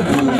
Come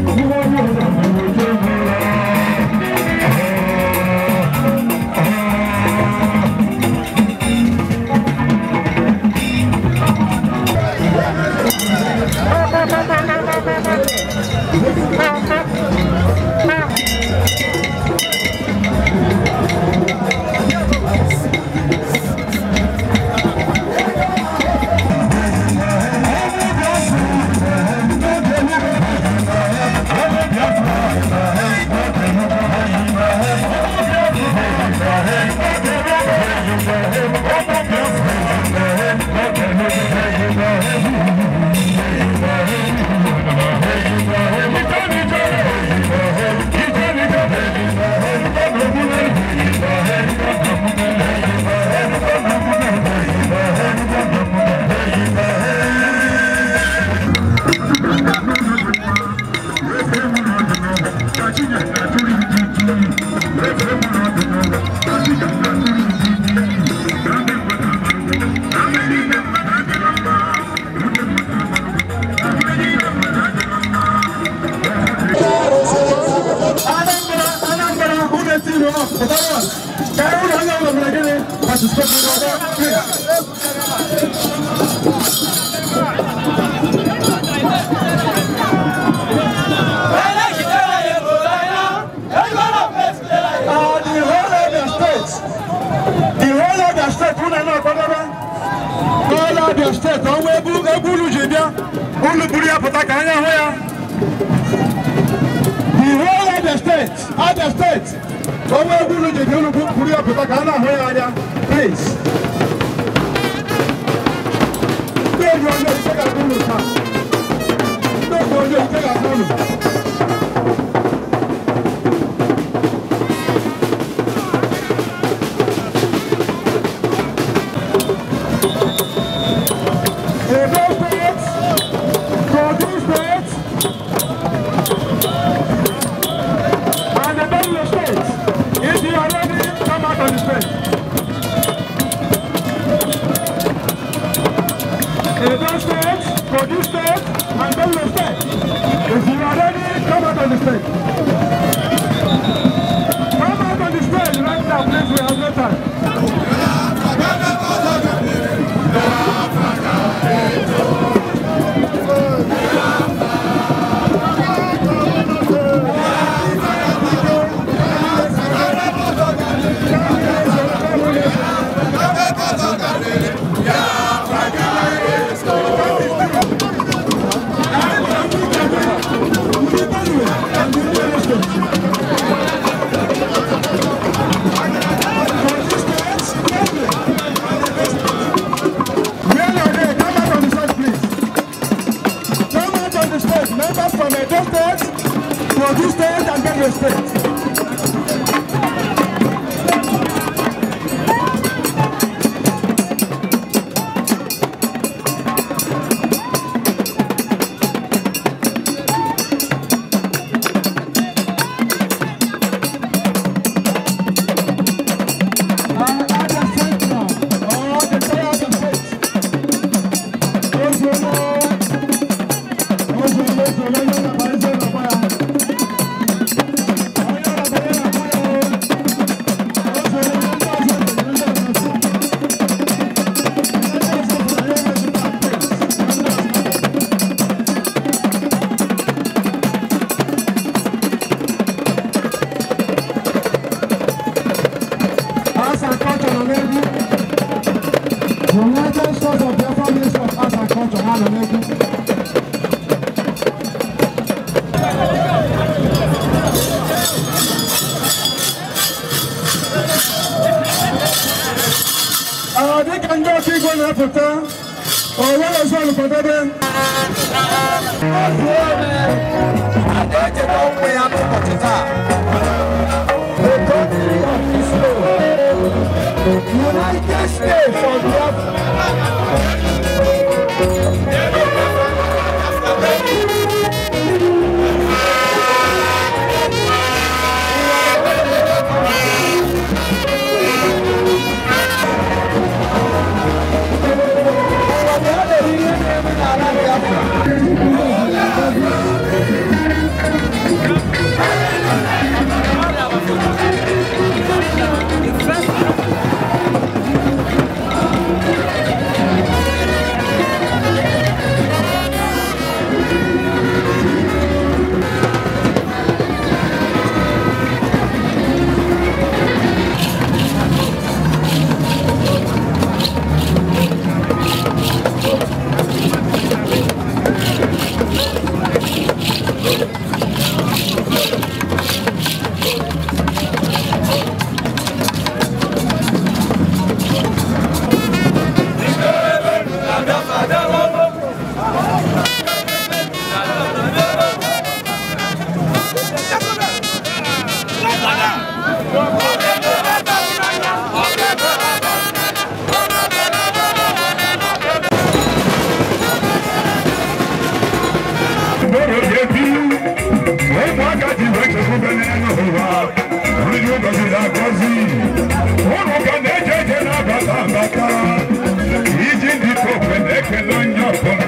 Сегодня Ghana, here, are they? Please. afikọ́ ọ̀wọ́ ẹ̀ṣọ́ olùkọ́dọ́dẹ́. àdéjẹ́ tó United States of Europe. Thank you. wakati bɛtɛ ko bɛ nɛnɛ na hova wuluju gɔsi la na bata bata yiji di ko fɛ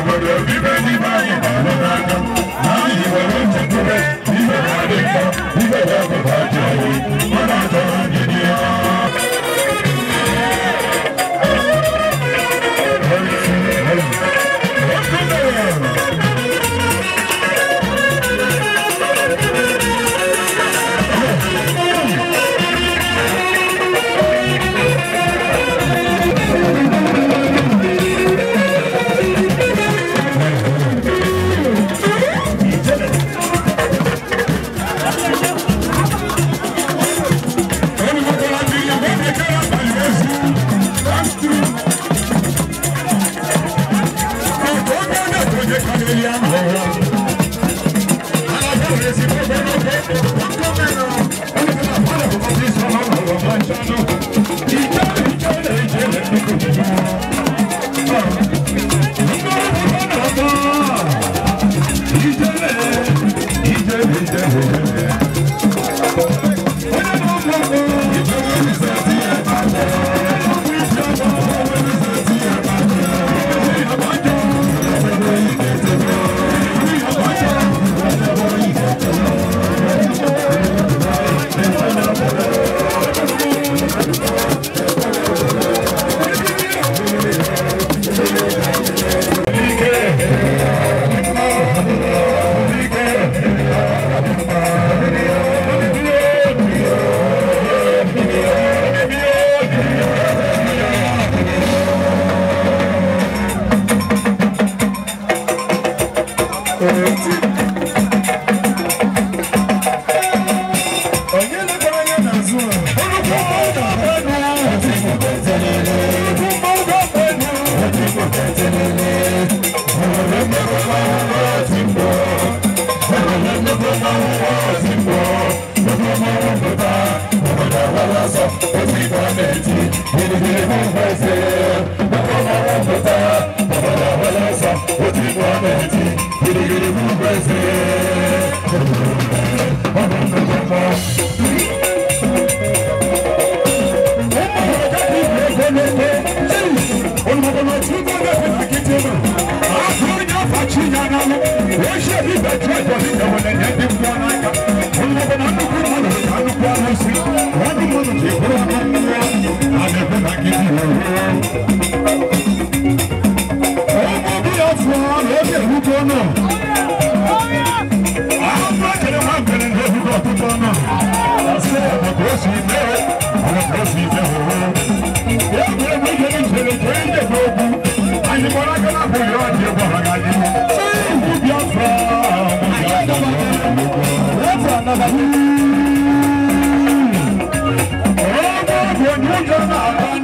àgbọ̀dọ̀ bí méjì bá yẹn lọ́nà dáná láyé ìwọ̀n ló ti kú bẹ́ẹ̀ nígbà wà lè kọ́ nígbà wà kò bá jẹ́ Hadi bir hadi Obi ọ̀fọ̀ ọ̀nà oge erugo náà. Àwọn mákèrè wá gbèrè ní erugo ọ̀tútù náà. Àṣé ọ̀nà kò sì bẹ́ ọ̀nà kò sì bẹ́ ọ̀rọ̀. Yóò gbé mi yé ìṣẹ̀lẹ̀ tó ń dè gbogbo. Àyìnbọ̀lá kẹ́lá kò yọ ọ̀dì ẹ̀bọ̀ àgàdì. Ṣé ìlú bí ọ̀fọ̀ ọ̀nà ìyá ìjọba kẹ́lá? Ọ̀rọ̀ ọ̀gbọ̀n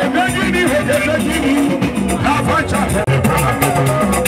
Ebegini, ebegini, afacha, ebegini.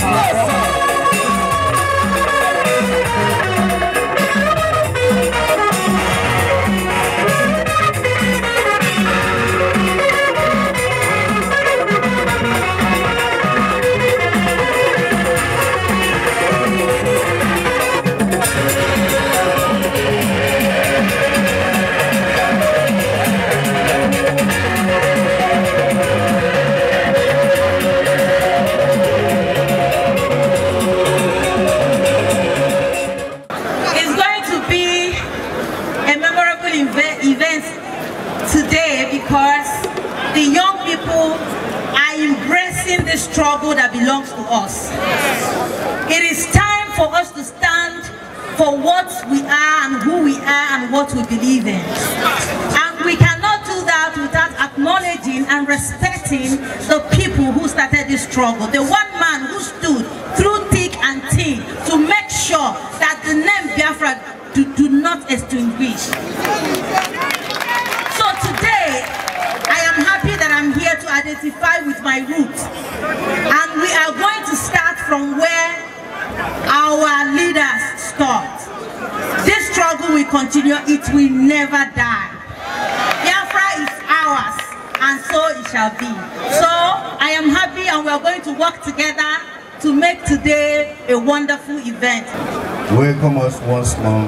welcome us once more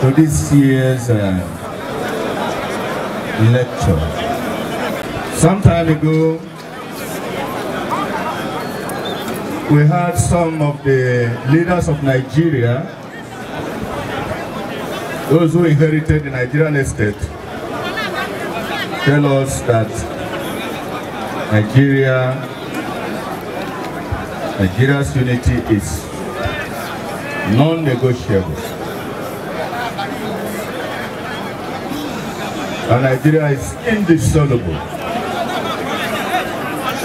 to this year's uh, lecture. Some time ago, we had some of the leaders of Nigeria, those who inherited the Nigerian estate, tell us that Nigeria, Nigeria's unity is non-negotiable. And Nigeria is indissoluble.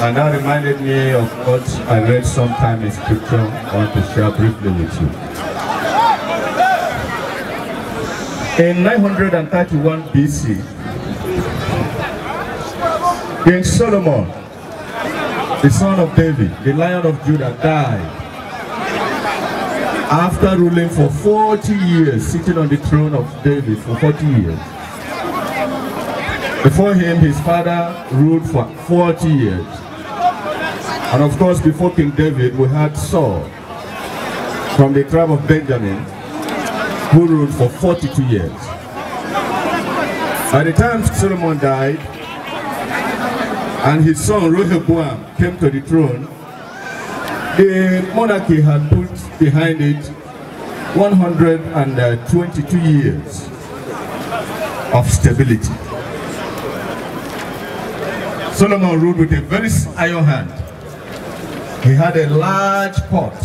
And that reminded me of what I read sometime in scripture I want to share briefly with you. In 931 BC, King Solomon, the son of David, the lion of Judah, died after ruling for 40 years, sitting on the throne of David for 40 years. Before him, his father ruled for 40 years. And of course, before King David, we had Saul from the tribe of Benjamin, who ruled for 42 years. By the time Solomon died, and his son Rehoboam came to the throne, The monarchy had put behind it 122 years of stability. Solomon ruled with a very iron hand. He had a large pot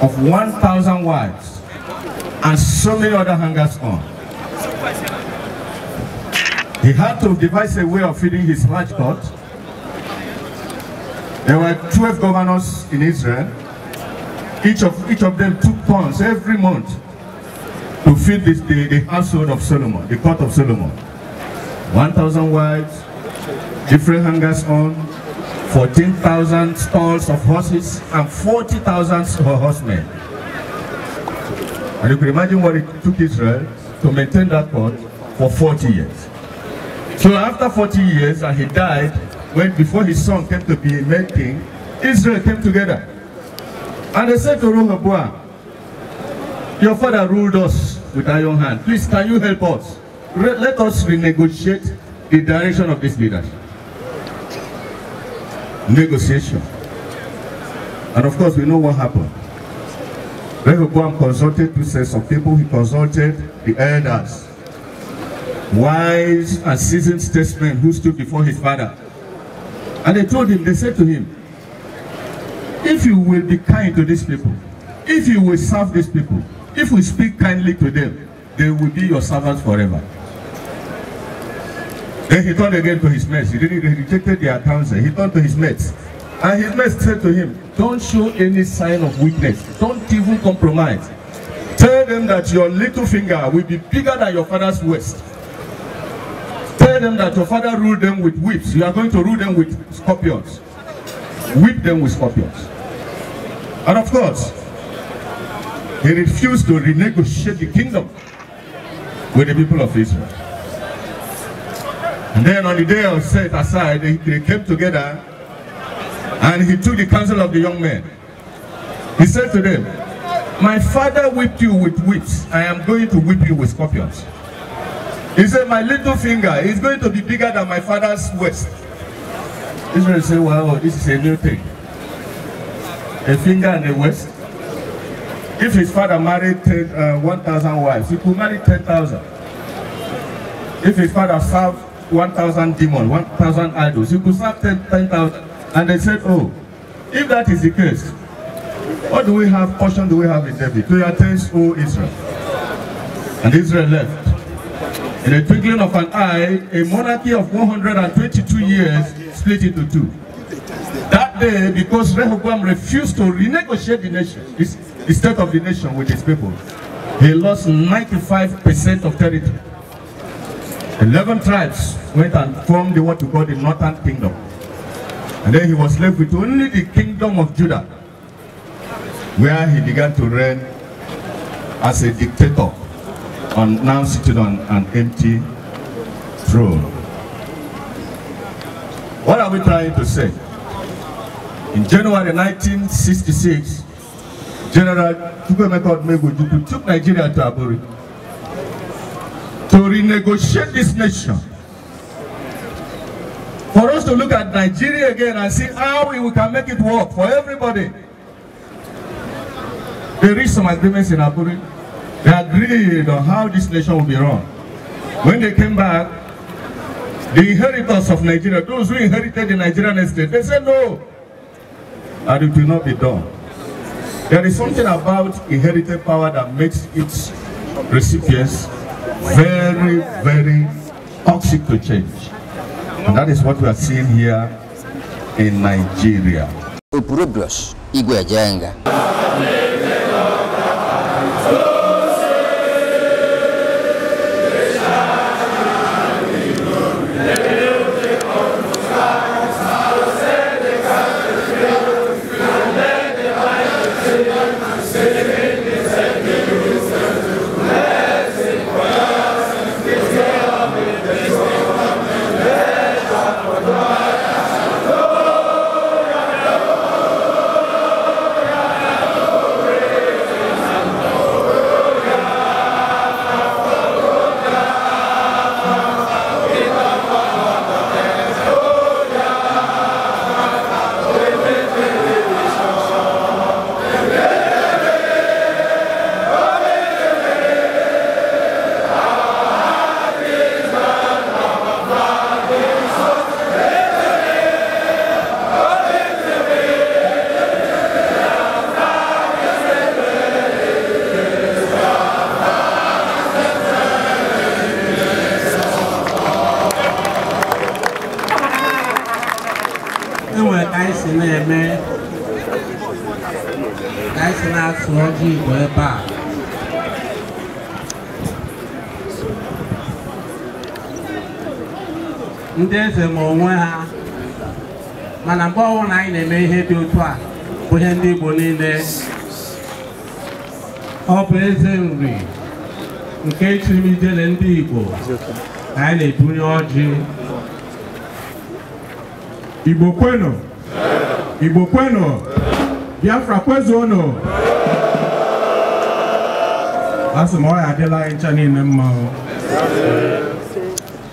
of 1,000 wives and so many other hangers on. He had to devise a way of feeding his large pot There were 12 governors in Israel. Each of, each of them took pounds every month to feed this, the, the household of Solomon, the court of Solomon. 1,000 wives, different hangers on, 14,000 stalls of horses, and 40,000 horsemen. And you can imagine what it took Israel to maintain that court for 40 years. So after 40 years, and he died, when before his son came to be made king, Israel came together. And they said to Rehoboam, your father ruled us with iron hand. Please, can you help us? Re let us renegotiate the direction of this leadership. Negotiation. And of course, we know what happened. Rehoboam consulted two sets of people. He consulted the elders, wise and seasoned statesmen who stood before his father. And they told him, they said to him, if you will be kind to these people, if you will serve these people, if we speak kindly to them, they will be your servants forever. Then he turned again to his mates. He rejected their counsel. He turned to his mates. And his mates said to him, Don't show any sign of weakness. Don't even compromise. Tell them that your little finger will be bigger than your father's waist. tell them that your father ruled them with whips. You are going to rule them with scorpions. Whip them with scorpions. And of course, he refused to renegotiate the kingdom with the people of Israel. And then on the day of set aside, they, they came together and he took the counsel of the young men. He said to them, My father whipped you with whips. I am going to whip you with scorpions. He said, my little finger is going to be bigger than my father's waist. Israel said, wow, this is a new thing. A finger and a waist. If his father married uh, 1,000 wives, he could marry 10,000. If his father served 1,000 demons, 1,000 idols, he could serve 10,000. 10, and they said, oh, if that is the case, what do we have, portion do we have in David? To your taste, O Israel. And Israel left. In the twinkling of an eye, a monarchy of 122 years split into two. That day, because Rehoboam refused to renegotiate the nation, the state of the nation with his people, he lost 95% of territory. 11 tribes went and formed the what we call the northern kingdom. And then he was left with only the kingdom of Judah, where he began to reign as a dictator on, now sitting on an empty throne. What are we trying to say? In January 1966, General Chukwemeka Odumegwu took Nigeria to Aburi to renegotiate this nation. For us to look at Nigeria again and see how we can make it work for everybody. They reached some agreements in Aburi. They agreed on how this nation will be run. When they came back, the inheritors of Nigeria, those who inherited the Nigerian estate, they said no, and it will not be done. There is something about inherited power that makes its recipients very, very toxic to change. And that is what we are seeing here in Nigeria. Igwe Jenga. ndị eze ma onwe ha mana mgbe ọnwụ na anyị na-eme ihe dị otu a bụ ihe ndị Igbo niile ọ bụ eze nri nke chirimijele ndị Igbo na anyị na-ebunye ọjị Igbo kwenu Igbo kwenu Biafra kwezuonu asị m ọ ya adịla anyị ncha niile mma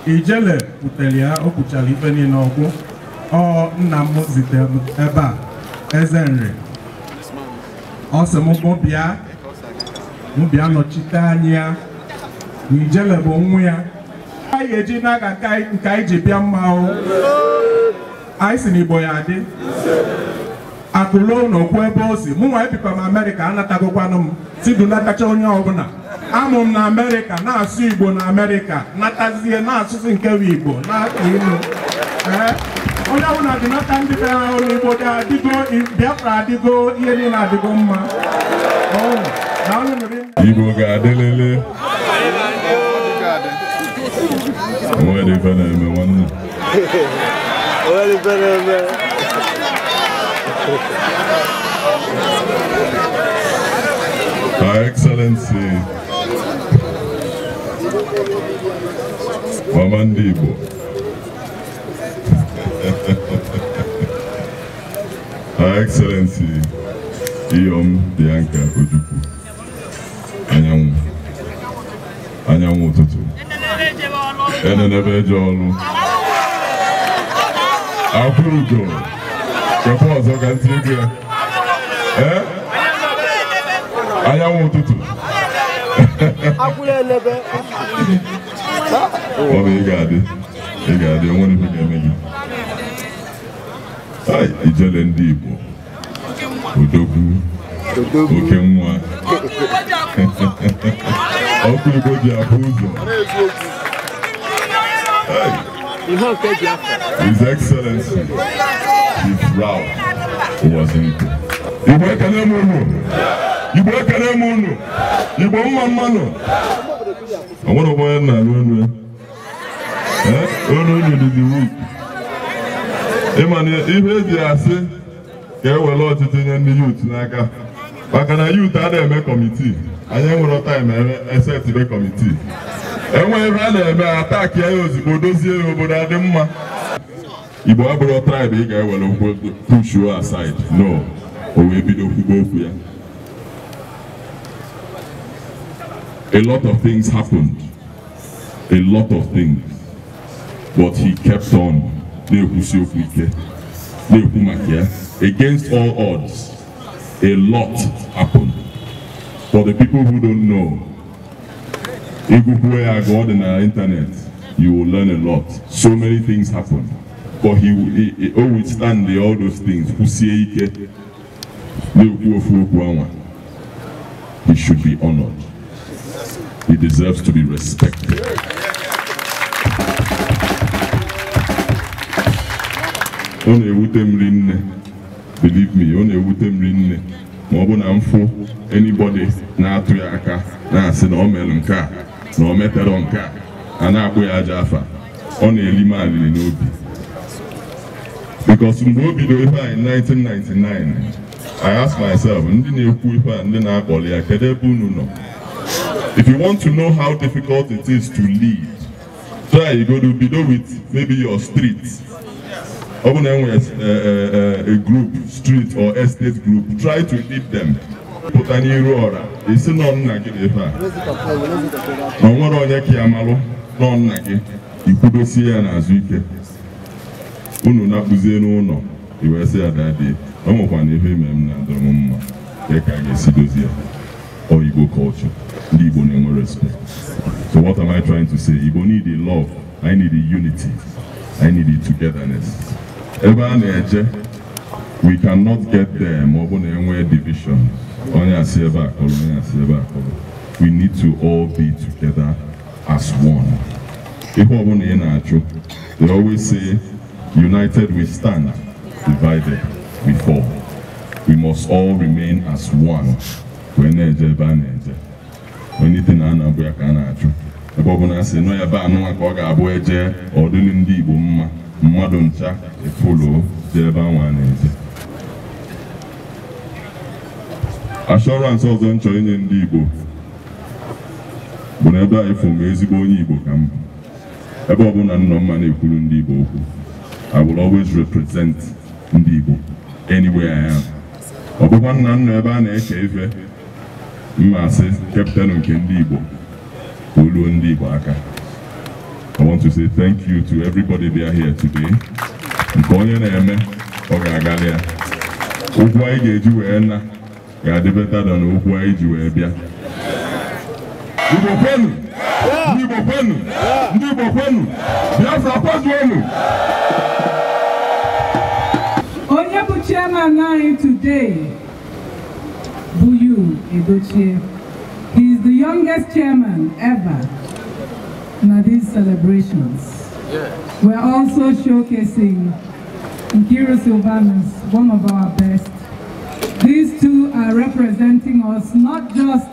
ijele butere ya o kwuchara ife niile ọkwụ ọ nna m zitere m ebe a eze nri ọ m bịa m nọchite anyị ya na ijele bụ nwa ya anyị eji n'aka nke anyị ji bịa mmanwụ anyị si n'igbo ya adị akụlo n'okwu ebe o si mụ nwa ebikwa m amerịka anatagokwanụ m tidulatacha onye ọbụla I'm amụ m na amerịka na-asụ igbo na amerịka natazie na-asụsụ nke bụ igbo na-akpa ilu eh? onye ọbụla dị nata ndị be ha ụlọ igbo bịafra adịgo ihe niile adịgo mma oh, igbo ga-adịlele onwere ife na-eme nwanne onwere ife na-eme Her Excellency mama ndị Igbo Her Excellency Iyom Bianca Ojukwu anyanwụ anyanwụ ụtụtụ enenebe eje ọlụ akwụrụgo kepa ọzọ ka ntị ego ya ee anyanwụ ụtụtụ ọ bụ ị ga-adị ị ga-adị o nwere ife eme gị ijele ndị Igbo odogwu oke nwa ọkụ Igbo ji ụzọ His Excellency Chief Rao Owazinko Igbo ekele m unu Igbo ekele m unu Igbo ọnwere onwe ya na-arụ elu olu unu dị wik ịma na ihe eji asị ka ewere ọchịchị nye ndị yut n'aka maka na yut a na-eme kọmitii anyị enwere taim kọmitii ebe a na-eme ataki ya ozugbo dozie ya obodo adị mma Igbo abụrụ traịbụ ị ga-ewere ụkwụ pushuo no o wee bido okwu ya A lot of things happened. A lot of things. But he kept on. Against all odds, a lot happened. For the people who don't know, if you go on the internet, you will learn a lot. So many things happened, But he, will he always stand the, all those things. He should be honored. He deserves to be respected. Ọ na-ewute m rinne, believe me, ọ na-ewute m rinne ma ọ bụ na mfụ anybody na-atụ ya aka na-asị na ọ mere nke a na ọ metere nke a a na-akpụ ya aja afa ọ na-eli m alili n'obi because mgbe o bidoro ife anyị 1999 I ask myself ndị na-ekwu ife a ndị na-akpọli ya kedu ebe unu nọ If you want to know how difficult it is to lead, try you go to Bido with maybe your street. Open uh, uh, uh, a group, street or estate group, try to lead them. pụta n'iru ọra isi nọ nna gị dị ebe a na o nwere onye ka ya malụ nọ nna gị ikwudosie ya n'azụ ike unu na-akpụzie n'ụlọ iwee sị ya dadi o nwekwana ihe ime m na adọrọ m mma ka ga-esi dozie ya oyigbo ndị Igbo na-enwe respect so what am I trying to say Igbo need a love I need a unity I need a togetherness ebe we cannot get there over ọ bụ division we need to all be together as one we ọ bụla our na-achụ they always say united we stand divided we fall we must all remain as one onite na na-abụ ya ka a na-achụ ebe ọ bụla a sị nọ ya be anụnwa ka ọ ga-abụ eje ọdịli ndị Igbo mma mmadụ ncha efuluo jee ebe anwa a na-eje ashọransị ọzọ m inye ndị Igbo bụ na ebe a ịfụ m ezigbo onye Igbo ka m bụ ebe ọbụla nọ mma na-ekwuru ndị Igbo okwu I will always represent ndị Igbo anywhere I am ọ bụkwa nna nna ebe a na-eche ife mma sị kapịtanụ nke ndị Igbo oluo ndị Igbo aka I want to say thank you to everybody there here today nke onye na-eme ọ ga-agalị ya ụgwọ anyị ga-eji wee na ga-adịbeta na ụgwọ anyị ji wee bịa Igbo kwenu ndị Igbo kwenu ndị Igbo kwenu Biafra kwajuonu onye bụ chairman anyị today you, He is the youngest chairman ever in these celebrations. We're also showcasing Nkiru Silvanus, one of our best. These two are representing us not just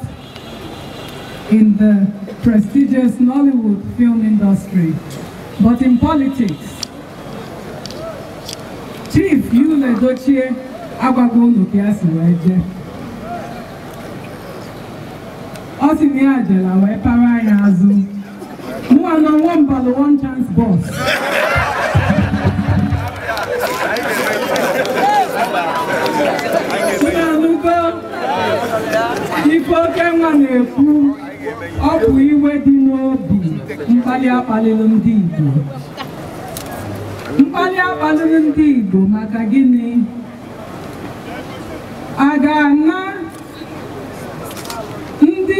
in the prestigious Nollywood film industry, but in politics. Chief Yule Dochie Agwagonu Kiasi Weje. ọ sị na ya jela wee para anya azụ mụwa na nwambalụ one chance bọs nanụgo ife oke nwa na-ekwu ọ bụ iwe dị n'obi mkpali akpalịlụ ndị Igbo mkpali akpalịlụ ndị Igbo maka gịnị a ga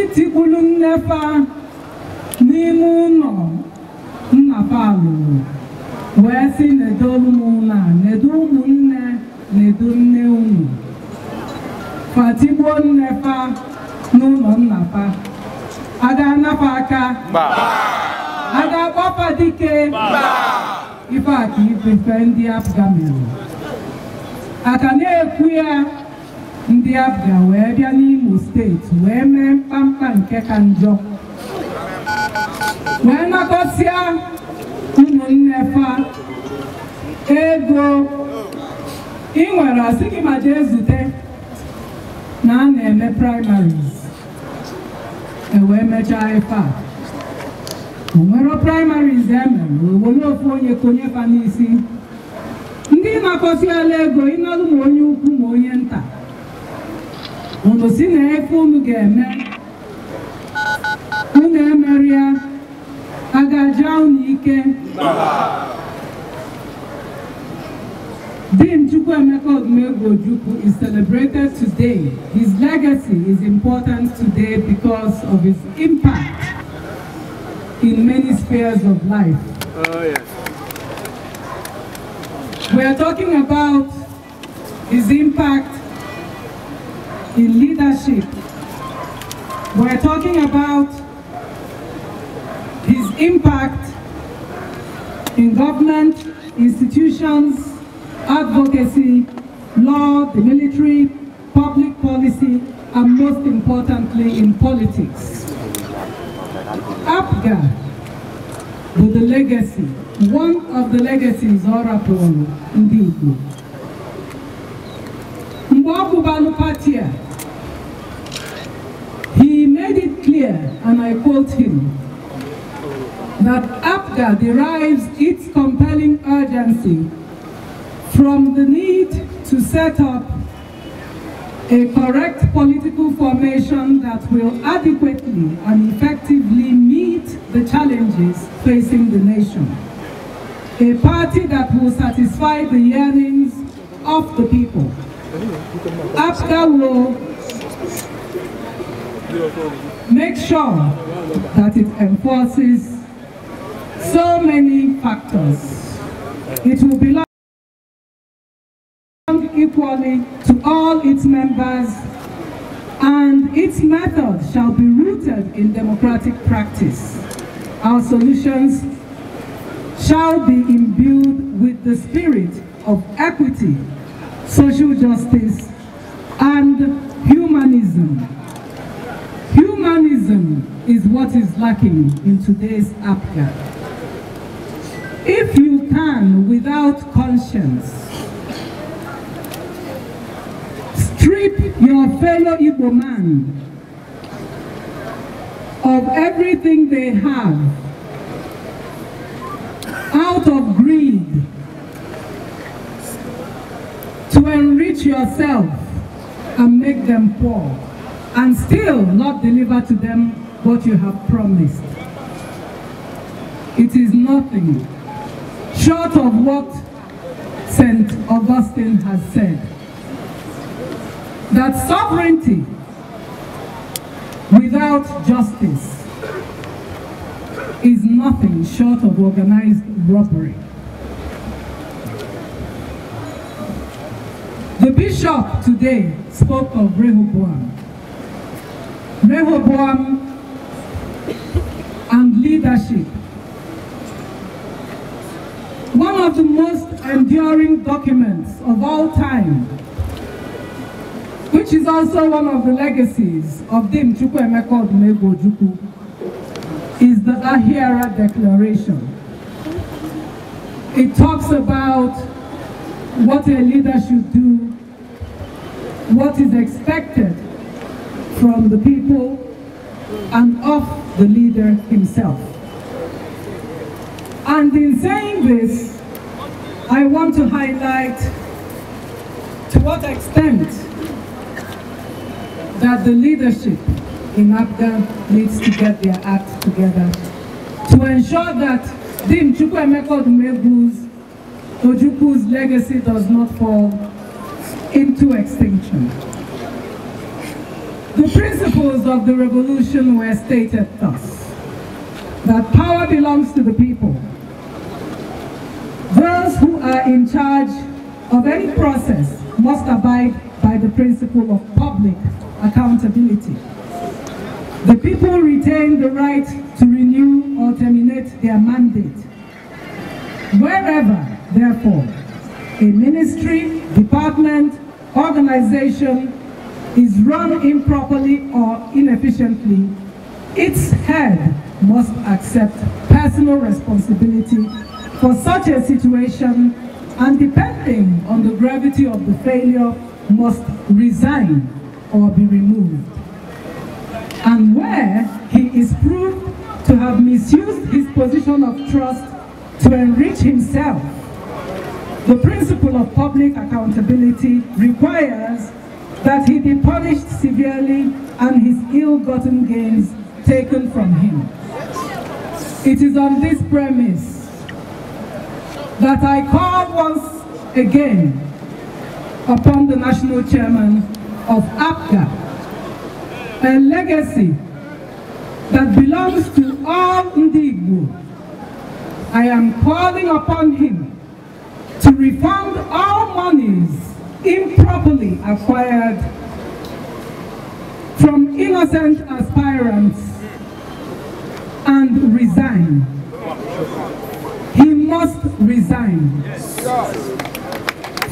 itikwulu nnefa n'ime ụlọ nnapa lụrụ wee sị nedo ụmụnna nedo ụmụnne nedo nne unu fatigbuo nnefa n'ụlọ nnapa ada anapa aka ada agbapa dike ife a ka ife ndị afga mere aka na-ekwu ya ndị abịa wee bịa n'Imo steeti wee mee mkpamkpa nke ka njọ wee nakọsịa ụmụnnefa ego ị nwere asị gị ma jee zute na a na-eme primaries ewee mechaa ife a onwero primaries emere nwere ofu onye konye fa n'isi ndị nakọsịala ego ịnọdụ ma onye ukwu ma onye nta ọnụ si na efe unu ga-eme unu emeri a ga-aja unu ike Dean Chukwuemeka Odumegwu is celebrated today. His legacy is important today because of his impact in many spheres of life. Oh, yes. We are talking about his impact in leadership. We're talking about his impact in government, institutions, advocacy, law, the military, public policy, and most importantly in politics. Apgar with the legacy, one of the legacies Ora Polo, indeed. Mgbe ọ and I quote him, that APGA derives its compelling urgency from the need to set up a correct political formation that will adequately and effectively meet the challenges facing the nation. A party that will satisfy the yearnings of the people. APGA will make sure that it enforces so many factors. It will belong equally to all its members and its methods shall be rooted in democratic practice. Our solutions shall be imbued with the spirit of equity, social justice, and humanism. Humanism is what is lacking in today's Africa. If you can, without conscience, strip your fellow Igbo man of everything they have out of greed to enrich yourself and make them poor and still not deliver to them what you have promised. It is nothing short of what St. Augustine has said, that sovereignty without justice is nothing short of organized robbery. The bishop today spoke of Rehoboam Rehoboam and leadership. One of the most enduring documents of all time, which is also one of the legacies of Dim Chukwu Emeka Odumegwu is the Ahira Declaration. It talks about what a leader should do, what is expected from the people and of the leader himself. And in saying this, I want to highlight to what extent that the leadership in Abga needs to get their act together to ensure that Dim Chukwemeko Dumebu's Ojuku's legacy does not fall into extinction. The principles of the revolution were stated thus, that power belongs to the people. Those who are in charge of any process must abide by the principle of public accountability. The people retain the right to renew or terminate their mandate. Wherever, therefore, a ministry, department, organization, is run improperly or inefficiently, its head must accept personal responsibility for such a situation and depending on the gravity of the failure must resign or be removed. And where he is proved to have misused his position of trust to enrich himself, the principle of public accountability requires that he be punished severely and his ill-gotten gains taken from him. It is on this premise that I call once again upon the national chairman of APCA, a legacy that belongs to all Ndigbo. I am calling upon him to refund all monies improperly acquired from innocent aspirants and resign. He must resign.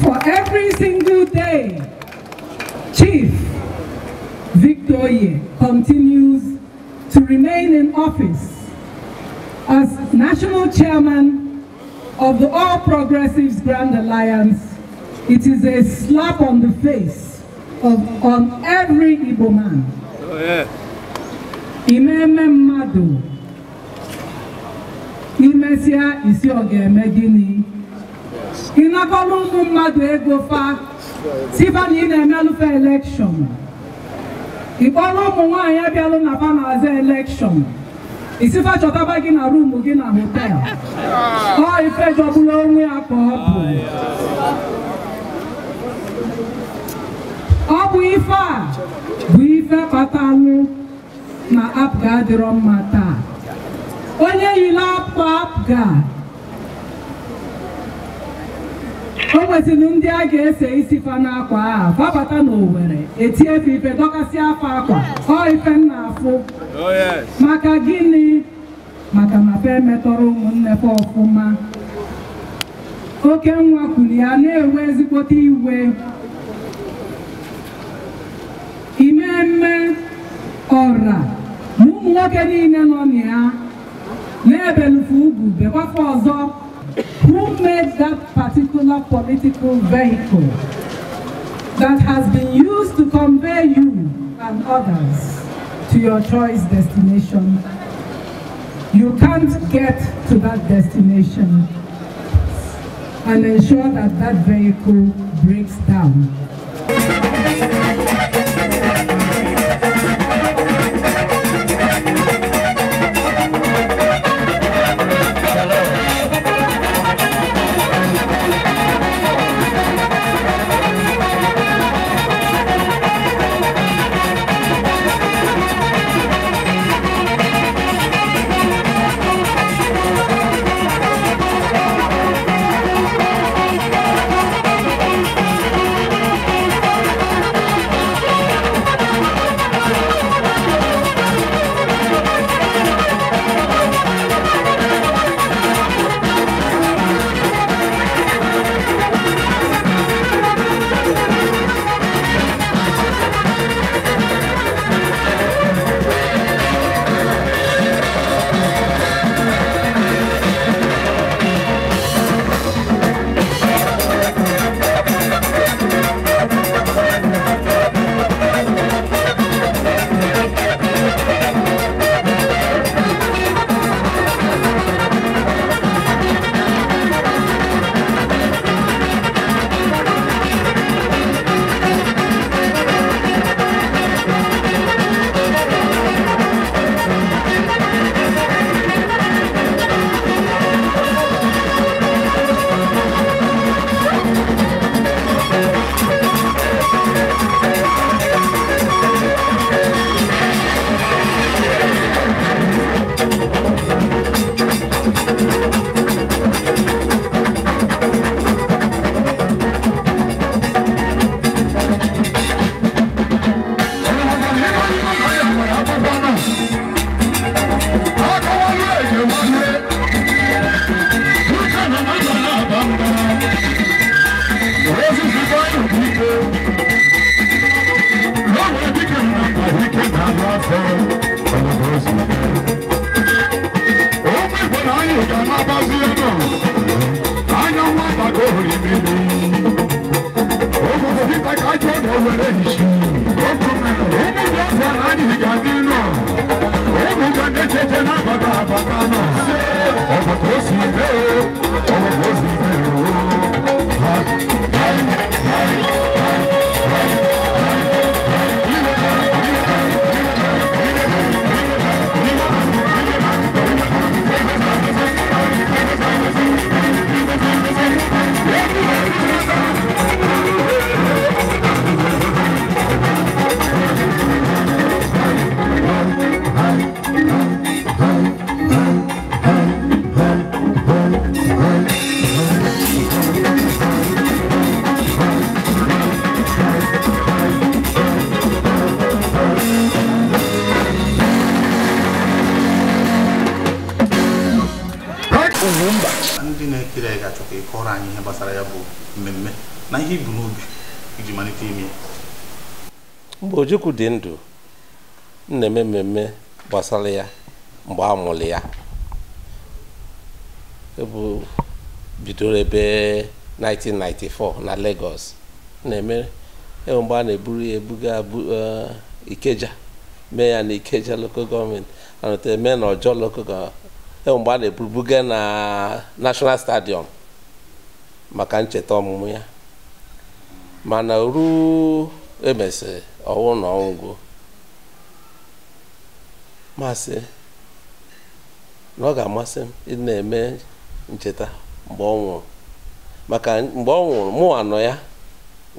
For every single day, Chief Victoria continues to remain in office as national chairman of the All Progressives Grand Alliance It is a slap on the face of on every Igbo man. Oh, yeah. Imeme mmadụ imesịa isi ọ ga-eme gịnị ịnakọrọ ụmụ mmadụ ego fa tifa na ị na-emelụfe elekshọn ịkpọrọ ụmụ nwanyị abịalụ na fa na-aza elekshọn isifa chọtaba gị na ruumu gị na hotel ah. ọ ife jọgburu onwe ya ka ọ bụ ife a bụ ife kpatalụ na apga adịrọ mma taa onye yile akwa apga o nwesịrị ndị a ga-ese isi fa n'akwa a babata n'Owere etie ife ife dọkasị afa akwa ọ ife m na-afụ maka gịnị maka na fa emetọrọ ụmụnne fa ọfụma oke nwa kwuru ya na-enwe ezigbote iwe ọra na nwoke niile nọ na ya na-ebelufe ugwu bekwakwa ọzọ who made that particular political vehicle that has been used to convey you and others to your choice destination. You can't get to that destination and ensure that that vehicle breaks down. Ojukwu dị ndụ na-eme mmemme gbasara ya mgbe a mụrụ ya bidoro ebe 1994 na Lagos na-eme e mgbe a na-eburu ya ebuga e, Ikeja mee ya na Ikeja local gọọmenti anọta eme na local gọọmenti mgbe a na-ebubuga na National Stadium maka ncheta ọmụmụ ya mana ruo emesịrị ọwụ na ọgwụgwụ masị na ọ ga-amasị m ị na-eme ncheta mgbe ọ nwụrụ maka mgbe ọ nwụrụ mụ anọ ya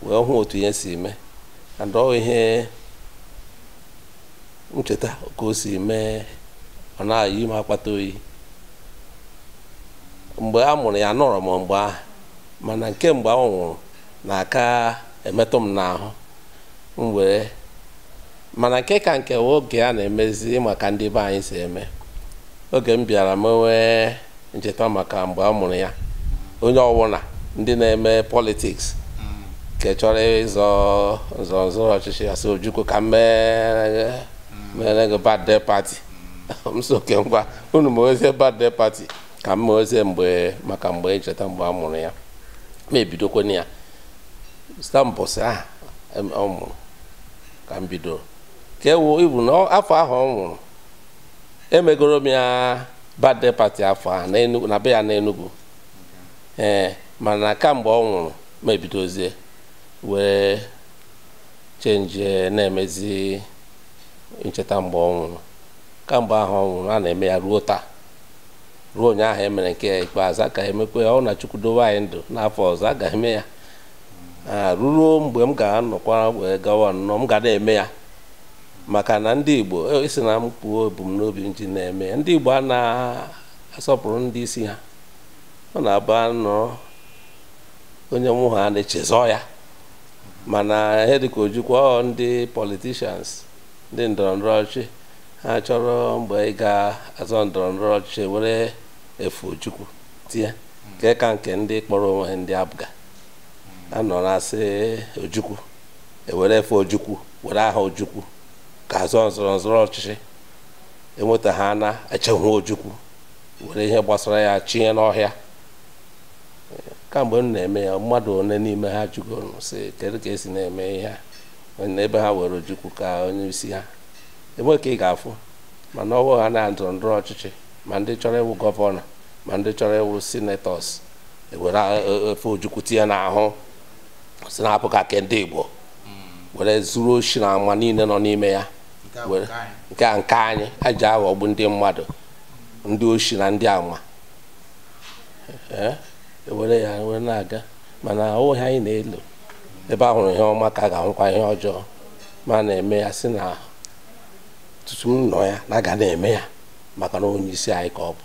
wee hụ otu ihe si mee adọ ihe ncheta ka o si mee ọ na akpata oyi mgbe a mụrụ ya nọrọ m mgbe ahụ mana nke mgbe ọ nwụrụ na aka emetụ m n'ahụ wee mana nke ka nke oge a na-emezi maka ndị be anyị si eme oge m bịara m nwee ncheta maka mgbe a mụrụ ya onye ọwụna ndị na-eme politiks nke chọrọ ịzọ nzọzọrọ ọchịchị asị ojukwu ka mere gị birthday party m ngwa unu ma ozie birthday ka m ma mgbe maka mgbe ncheta mgbe a mụrụ ya ma ebidokwana ya stampụsị aha ọ mụrụ ka m ka ewu ibu na afọ ahụ ọ nwụrụ emegoro m ya bade pati afọ a na be ya na Enugu ee mana kamgbe ọ nwụrụ mebidozie wee chenji na-emezi ncheta mgbe ọ nwụrụ kamgbe ahụ ọ nwụrụ a na-eme ya ruo taa ruo ụnyaahụ emere nke ikpeazụ a emekwe ya ọ na Chukwu anyị ndụ n'afọ ọzọ a eme ya ruruo mgbe m ga-anọkwa wee gawa nnọọ m ga na-eme ya maka na ndị igbo esi e na m kpuo ebumnobi m ji na-eme ndị igbo a na-asọpụrụ ndị isi ha ọ na-aba nnọọ onye mụ ha na-echezọ ya mana ihe dịka ojukwa ndị politishans ndị ndọrọndọrọ ọchịchị ha chọrọ mgbe ị ga-azọ ndọrọndọrọ ọchịchị were efu ojukwu tie nke ka nke ndị kpọrọ onwe ha ndị abụga anọ na-asị ojukwu ewere efe ojukwu were aha ojukwu ka zụọ nzọrọ nzọrọ ọchịchị enweta ha na-echehụ ojukwu were ihe gbasara ya chinye n'ọhịa kamgbe m na-eme ya mmadụ one n'ime ha jụgoro si kedu ka esi na-eme ihe n'ebe ha were ojukwu ka onye isi ha enwe ka ị ga-afụ mana ọwụ ha na ndọrọ ndọrọ ọchịchị ma ndị chọrọ ịwụ gọvanọ ma ndị chọrọ ịwụ sinetọs ewere e, e, efe ojukwu tinye n'ahụ si na-apụ ka ndị Igbo were zuru oshi na ama niile nọ n'ime ya nke a nke anyị a ji aghọgbu ndị mmadụ ndị oshi na ndị ama were ya were na-aga mana ohe anyị na-elu ebe a hụrụ ihe ọma ka a ga-ahụkwa ihe ọjọọ ma na-eme ya si na tutu m ya na aga na-eme ya maka na onye isi anyị ka ọ bụ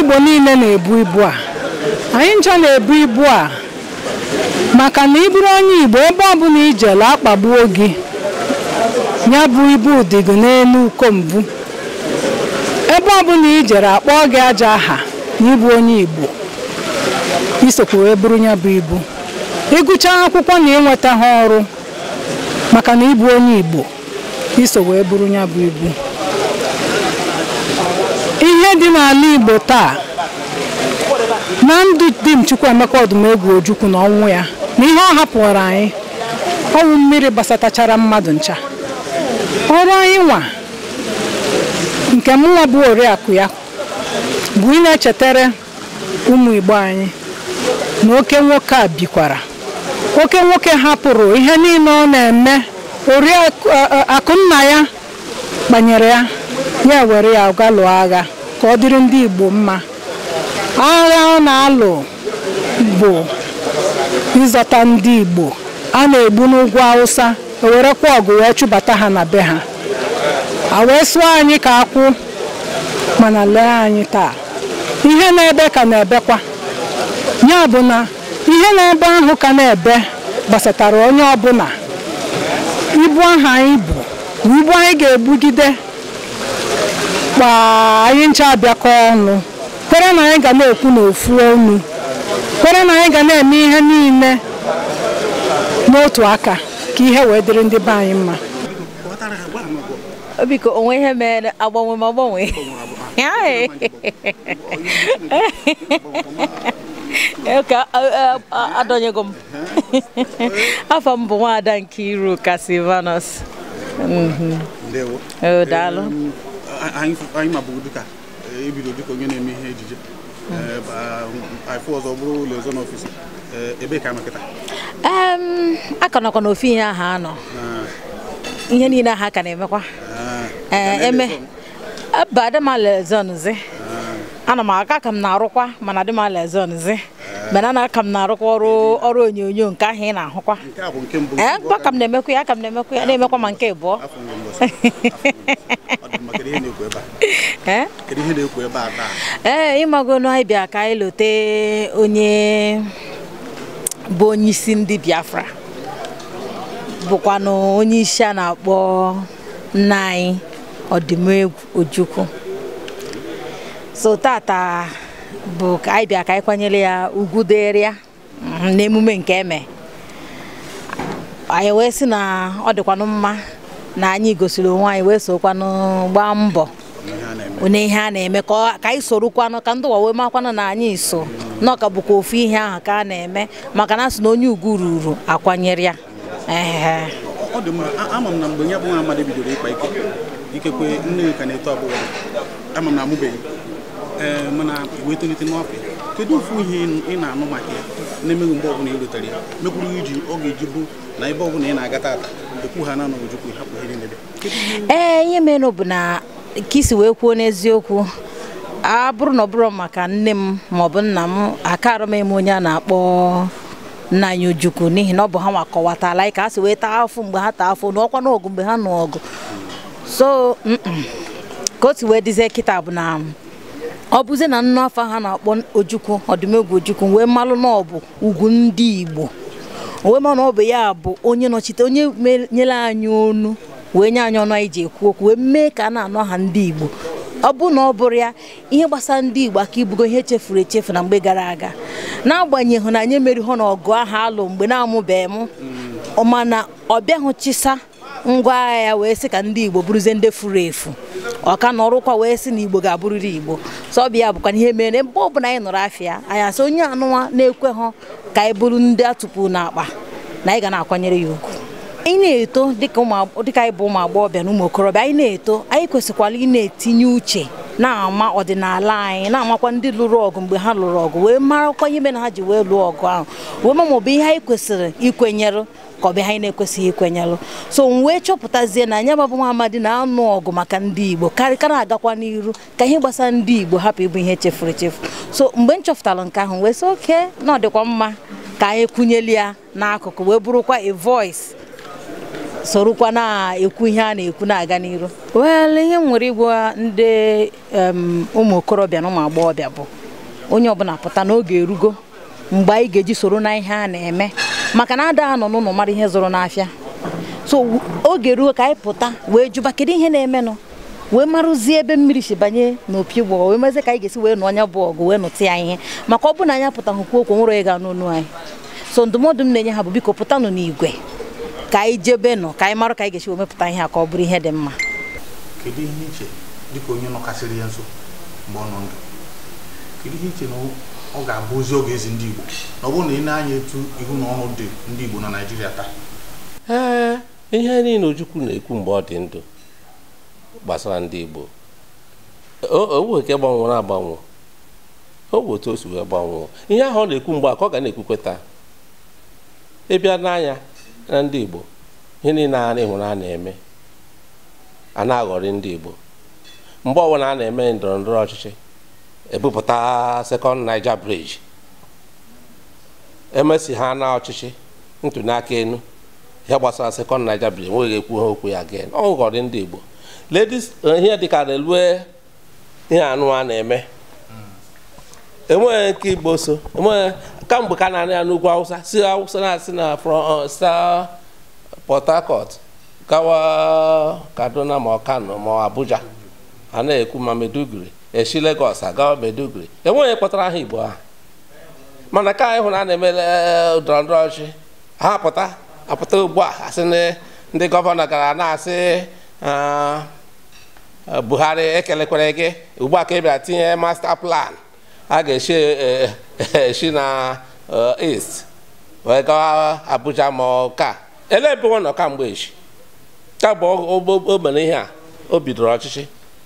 Igbo niile na-ebu ibu a anyị ncha na-ebu ibu a maka na ịbụrụ onye Igbo ebe ọbụla ijela akpagbuo gị ya bụ ibu udigo n'elu uko mbụ ebe ọbụla ijere akpọọ gị aja aha na ịbụ onye Igbo isokwa wee bụrụ ya bụ ibu ịgụcha akwụkwọ na ịnweta ha ọrụ maka na ịbụ onye Igbo iso wee bụrụ ya bụ ibu ihe dị n'ala Igbo taa na ndụ di m Chukwuemeka ọdụmegwu Ojukwu na ọnwụ ya na ihe ọ hapụrụ anyị ọnwụ mmiri gbasatachara mmadụ ncha ọrụ anyị nwa nke nwa bụ oriakụ ya bụ ị na-echetara ụmụ Igbo anyị na oke nwoke a bikwara oke nwoke hapụrụ ihe niile ọ na-eme oriakụ nna ya kpanyere ya ya were ya ga lụọ agha ka ọ dịrị ndị Igbo mma agha ọ na-alụ bụ ịzọta ndị Igbo a na-egbu n'ugwu Hausa ewerekwa ọgụ wee chụbata ha na be ha a wee sụọ anyị ka akwụ mana lee anyị taa ihe na-ebe ka na-ebekwa ya bụ na ihe na-ebe ahụ ka na-ebe gbasatara onye ọbụla ibu ahụ anyị bụ ibu anyị ga-ebugide mkpa anyị ncha abịakọ ọnụ kwere na anyị ga na-ekwu n'ofu ọnụ kwere na anyị ga na-eme ihe niile n'otu aka ka ihe wee dịrị ndị be anyị mma biko onwe ihe nwaada nke anyị mabụrụ dịka ebido eh, e dịka onye na-eme ihe ejije afọ eh, ọzọ bụrụ ụlọ ọzọ eh, ebe ka anọkịta akọnọkọ n'ofe ihe aha anọ ah. ihe niile aha ka na-emekwa ah. eme aba adịmalezonzi ah. ana m aka ka m na-arụkwa mana adịmalezonzi mana a na-aka m na-arụkwa ọrụ ọrụ onyonyo nke ahụ ị eh, na-ahụkwa ee ka m na-emekwa ya aka m na-emekwa ya na-emekwa ma nke ịbụọ ee ịmagonu anyị bịa ka anyị lote onye bụ onyeisi ndị Biafra bụkwanụ onye isi a na-akpọ nna anyị Odimegwu Ojukwu so tata bụ ka anyị ka anyị kwanyere ya ugwu dịrị ya mm, n'emume nke eme anyị wee sị na ọ dịkwanụ mma na anyị gosiri onwe anyị wee sokwanụ gbaa mbọ onye ihe a na-eme ka anyị sorokwanụ ka ndị ụwa wee makwanụ na anyị so na ọka bụkwa ofu ihe ahụ ka a na-eme maka na asị na onye ugwu ruru akwanyere ya ikekwe nne ka na-eto abụghị, ama na amụbeghị Eh, mana wetolite n'ọpị kedu ofu ihe ị na-anụ maka ya na-emeghị mgbe ọbụla ị rutere ya mekwuru iji ọ ga-eji bụ na ebe ọbụla ị na-aga tata ekwu ha na ojukwu hapụ ihe niile ee ihe eh, mere bụ na ka isi wee kwuo n'eziokwu a bụrụ na ọ bụrụ maka nne m maọbụ nna m akarọ m eme onye a na-akpọ nna anyị ojukwu n'ihi na ọ bụ ha nwa kọwatala anyị ka ha si wee taa afọ mgbe ha taa afọ n'ọkwa n'ọgụ mgbe ha nọ ọgụ so ka o si wee dizie kịta bụ na ọ bụzi na nnụ afọ ha na-akpọ ojukwu ọdụmegwu ojukwu wee malụ na ọ bụ ugwu ndị igbo wee ma na ọ bụ ya bụ onye nọchite onye nyere anyị onu wee nye anyị ọnụ anyị ji ekwu okwu wee mee ka a na-anọ ha ndị igbo ọ bụ na ọ bụrụ ya ihe gbasara ndị igbo aka ibugo ihe chefuru echefu na mgbe gara aga n'agbanyeghị na anyị hụ na ọgụ ahụ alụ mgbe na-amụbeghị m mana ọ bịaghị chisa ngwa agha ya wee sị ka ndị Igbo bụrụzie ndị furu efu ọka na ọrụkwa wee sị na Igbo ga-abụrịrị Igbo ya bụkwa ihe mere mgbe ọbụla anyị nọrọ afịa anyị asị onye anụwa na ekwe ha ka anyị bụrụ ndị atụpụ n'akpa na anyị ga na-akwanyere ya ugwu anyị na-eto dịka anyị bụ ụmụ agbọghọbịa na ụmụ okorobịa anyị na-eto anyị kwesịkwara ị na-etinye uche na-ama ọdịnala anyị na-amakwa ndị lụrụ ọgụ mgbe ha lụrụ ọgụ wee marakwa ihe mere ha ji wee lụọ ọgụ ahụ wee ma ọ bụ ihe anyị kwesịrị ikwenyere ka ọ bụ ihe anyị na-ekwesịghị ikwenyelụ so m wee e chọpụtazie na anyị ababụ nwa amadi na-anụ ọgụ maka ndị Igbo karịka na-agakwa n'iru ka ihe gbasa ndị Igbo hapụ ịbụ ihe chefuru echefu so mgbe m chọpụtara nke ahụ wee sị oke na ọ dịkwa mma ka anyị kwunyeli ya n'akụkụ wee bụrụkwa a voice sorokwa na-ekwu ihe a na-ekwu na-aga n'iru wel ihe m nwere ịgwa ndị ụmụ okorobịa na ụmụ agbọghọbịa bụ onye ọbụla pụta n'oge erugo mgbe anyị ga-eji soro na ihe a na-eme maka na ada ha n'ụlọ mara ihe zụrụ n'afịa so oge ruo ka anyị pụta wee jụba kedu ihe na-emenụ wee marụzie ebe mmiri si banye n'opi gbọọ wee mezie ka anyị ga-esi wee nụ ọnya bụ ọgụ wee nụta ya ihe maka ọ bụrụ na anyị apụtaghị kwuo okwu nwere ịga n'onu anyị so ndụmọdụ m na-enye ha bụ biko pụtanụ n'igwe ka anyị jebe nọ ka anyị marụ ka anyị ga-esi wee mepụta ihe a ka ọ bụrụ ihe dị mma kedu ihe iche dịka onye nọkasịrị ya nso mgbe ọ nọ ndụ kedu ihe iche na ọ ga-abụzi oge ezi ndị Igbo na ọ bụrụ na ị na-anya etu ihu na ọnụ dị ndị Igbo na Naịjirịa taa ee ihe niile Ojukwu na-ekwu mgbe ọ dị ndụ gbasara ndị Igbo owu nke gbanwere agbanwe owu otu o si wee gbanwee ihe ahụ ọ na-ekwu mgbe a ọ ga na-ekwukwe taa ịbịa n'anya na ndị Igbo ihe niile a na-ehụrụ na-eme a na-aghọrị ndị Igbo mgbe ọbụla a na-eme ndọrọ ndọrọ ọchịchị ebupụta second Niger bridge emesi ha na ọchịchị ntụnaka enu ihe gbasara second Niger bridge nweghị ekwu ha okwu ya again ọ ndị Igbo ladies eh, ihe dịka relue ihe anụ a na-eme enweghị nke Igbo so enweghị kamgbe ka na-anị ya n'ugwu Hausa si Hausa na-asị na from uh, Port Harcourt gawa Kaduna ma Kano ma Abuja a na-ekwu ma Maiduguri esi Lagos aga Maiduguri enweghị kpọtara aha Igbo ahụ mana ka anyị na a na-eme e, ndọrọ ọchị ha apụta apụta ugbu a asị ndị gọvanọ gara na-asị e, Buhari ekelekwere gị ugbu a ka ị bịara tinye masta plan a ga-esi esi e, na est wee gawa Abuja ma ka ele ebe nọ kamgbe echi ka bụ o mere ihe a o bidoro ọchịchị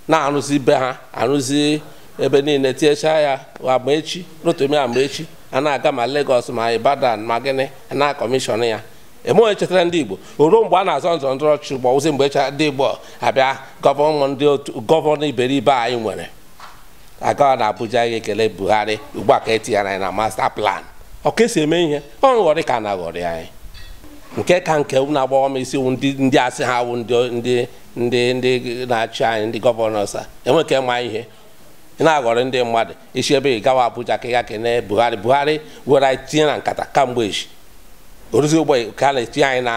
na-arụzi be ha arụzi ebe niile tinyechaa ya agba echi rotomi agba echi a na-aga ma legos ma Ibadan ma gịnị na kọmishọn ya emeghị chetara ndị Igbo oruo mgbe a na-azọ nzọ ndọrọ ọchịchị gbọwụzi mgbe echa ndị Igbo abịa gọvanọ iberibe anyị nwere agawa na Abuja ya ekele Buhari ugbu a ka etinyere anyị na masta plan ọ ka eme ihe ọ nghọrị ka na-aghọrị anyị nke ka nke na-agbawa m isi ndị asị ha wụ ndị ndị ndị na-achị anyị ndị gọvanọs a enweke ma ihe ị na-aghọrọ ndị mmadụ isi ebe ị gawa Abuja ka ị ga kene Buhari Buhari were anyị tinye na nkata kamgbe echi oruzi ụgbọ ka a na-etinye anyị na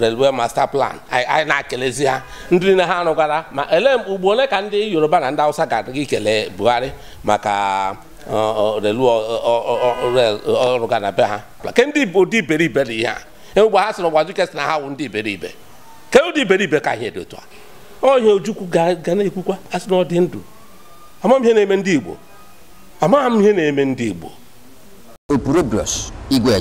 railway master plan anyị na-akelezi ha ndị niile ha rụgara ma ele ugbo ole ka ndị Yoruba na ndị awụsa ga-adịghị ikele Buhari maka relọrụga na be ha ke ndị Igbo dị iberibe dị ihe a egbe ha sịrị gbajuke sị na ha wụ ndị iberibe ka ụdị ibe ka ihe dị otu a onye ojukwu ga na-ekwukwa asị na ọ ndụ amaghị ihe na-eme ndị igbo amaghị ihe na-eme ndị igbo igwe